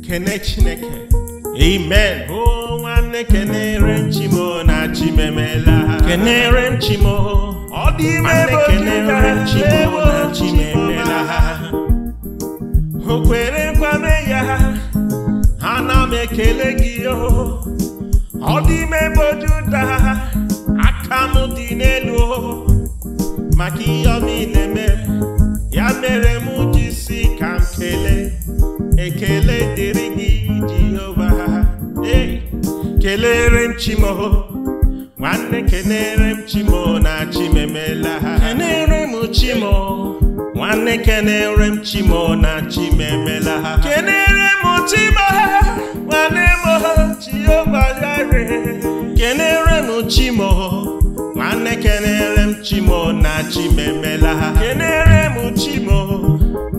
kene chineke amen o nwanne kenere m na chimemela kenere m chimo ọ dị ime kenere m na chimemela ha o kwere nkwame ya ana m ekele gị o ọ dị ime bụ juda aka m dị n'elu o, maka ihe ọma na-eme ya mere m ji si ka m kele ekele chimo nwanne kenere m chimo na chimemela ha kenere m chimo nwanne kenere m chimo na chimemela ha kenere m chimo nwanne m chiogbaghari kenere m chimo nwanne kenere m chimo na chimemela ha kenere m chimo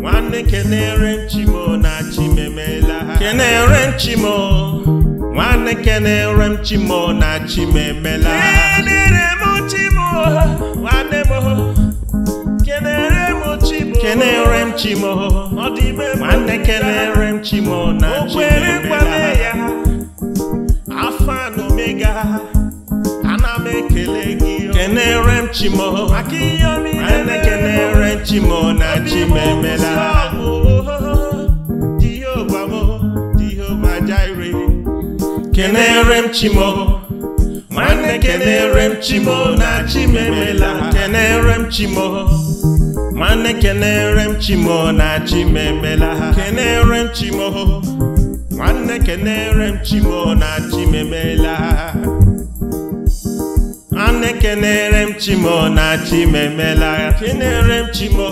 nwanne kenere m chimo na chimemela ha kenere m chimo nwanne kenere m chimo na chimemela kenere m chimo m kenere m chimo m chimo ọ nwanne kenere m chimo na chimemela afa na ana m ekele gị kenere m chimo nwanne kenere m chimo na chimemela kenere m chimo nwanne kenere m chimo na chimemela kenere m chimo nwanne kenere m chimo na chimemela kenere m chimo nwanne kenere m chimo na chimemela nwanne kenere m chimo na chimemela kenere m chimo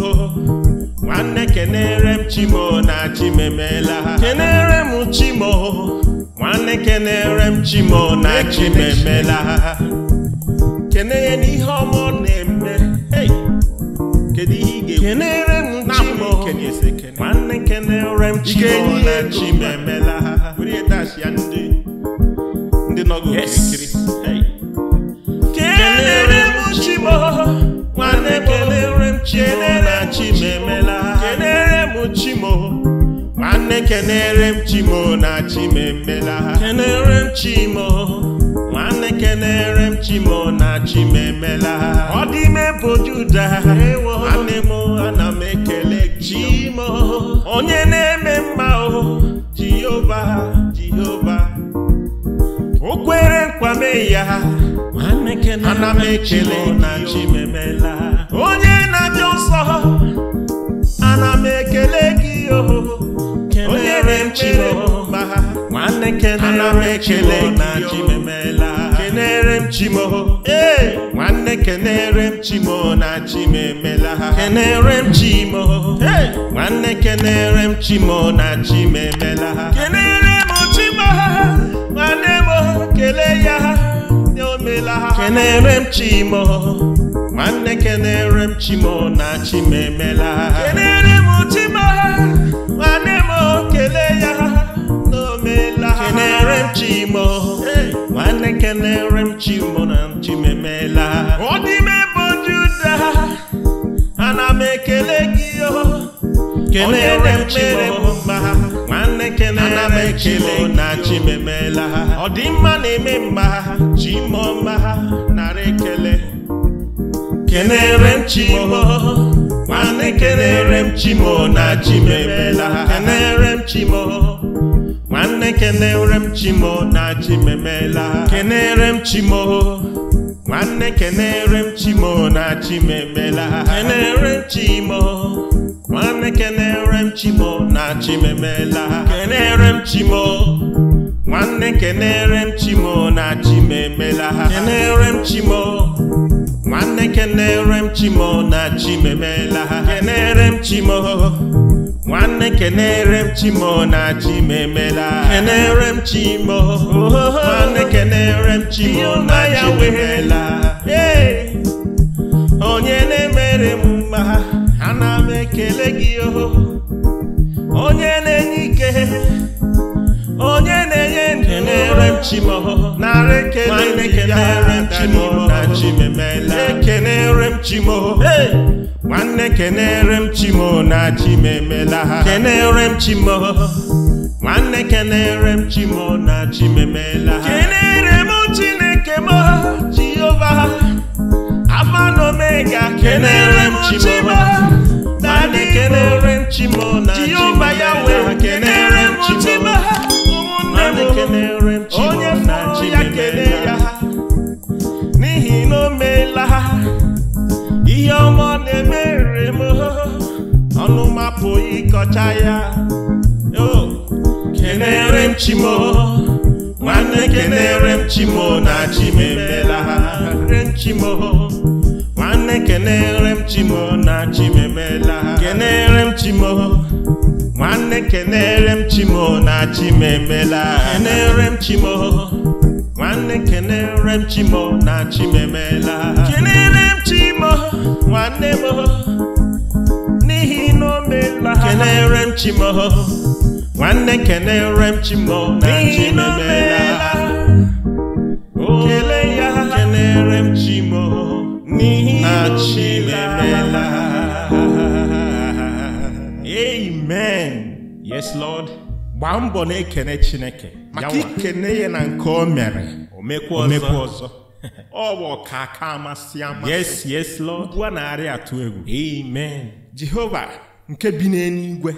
nwanne kenere m chimo na chimemela kenere m chimo nwanne kenere m na chim emela kene ya n'ihe ọma ọ na-eme kedu ihe ị ga-kenere m nwanne kenere m na chim emela ya ndị ndị nọgo okirikiri kenere m kenere m chimo na chimemela kenere m chimo nwanne kenere m chimo na chimemela ọ dị ime bụ juda nwanne m ana m ekele chimo onye na-eme mma o jehova jehova o kwere nkwame ya nwanne kenere m chimo na chimemela chimo nwanne kenere m na chimemela kenere m chimo nwanne kenere m chimo na chimemela kenere m chimo nwanne kenere m chimo na chimemela kenere m chimo nwanne m kele ya omela kenere m chimo nwanne kenere m chimo na chimemela kenere imela ọ n'ime bụ Juda ana m ekele gị onye na-emere m mma nwanne ana m ekele na chimemela ọ dị mma na-eme mma chimọma narị ekele kenere m chimo nwanne kenere m chimo na chimemela kenere m chimo nwanne kenere m chimo na chimemela kenere m chimo nwanne kenere m chimo na chimemela kenere m chimo nwanne kenere m chimo na chimemela kenere m chimo nwanne kenere m chimo na chimemela kenere m chimo nwanne kenere m chimo na chimemela kenere m chimo nwanne kenere m chimo na chimemela kenere m chimo nwanne kenere m chimo na chimemela onye na-emere m mma ana m ekele gị oho onye na-enye ike onye na-enye ndụ chimo nara na nwanne kenere m chimo na chimemela ha kenere m chimo nwanne kenere m na ha kenere m chineke jehova kenere m chimo na kenere m chimo na mapụ ịkọcha ya kenere m chimo nwanne kenere m chimo na chimemela chimo nwanne kenere m chimo na chimemela kenere m chimo nwanne kenere m chimo na chimemela kenere m chimo nwanne kenere m chimo na chimemela kenere m chimo nwanne m kenere m chimo nwanne kenere m chimo na chimemela kele ya kenere m chimo na chimemela amen yes lord gbaa mbọ na-ekene chineke maka ikene ya na nke o mere o mekwa ọzọ ọ bụ ọka aka amasị amasị yes yes lord ugbu a na-arị atụ egwu amen jehova nke bi n'eluigwe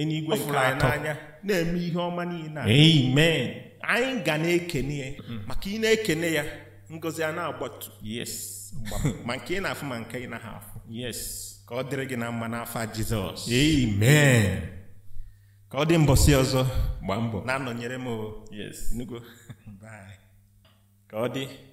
eluigwe nke atọ na-eme ihe ọma niile amen anyị ga na-ekene ya maka ị na-ekene ya ngozi a na-agbatu yes ma nke ị na-afụ ma nke ị naghị afụ yes ka ọ dịrị gị na mma n'afọ jizọs amen ka ọ dị mbọsị ọzọ gbaa mbọ na-anọnyere m yes nugo ka ọ dị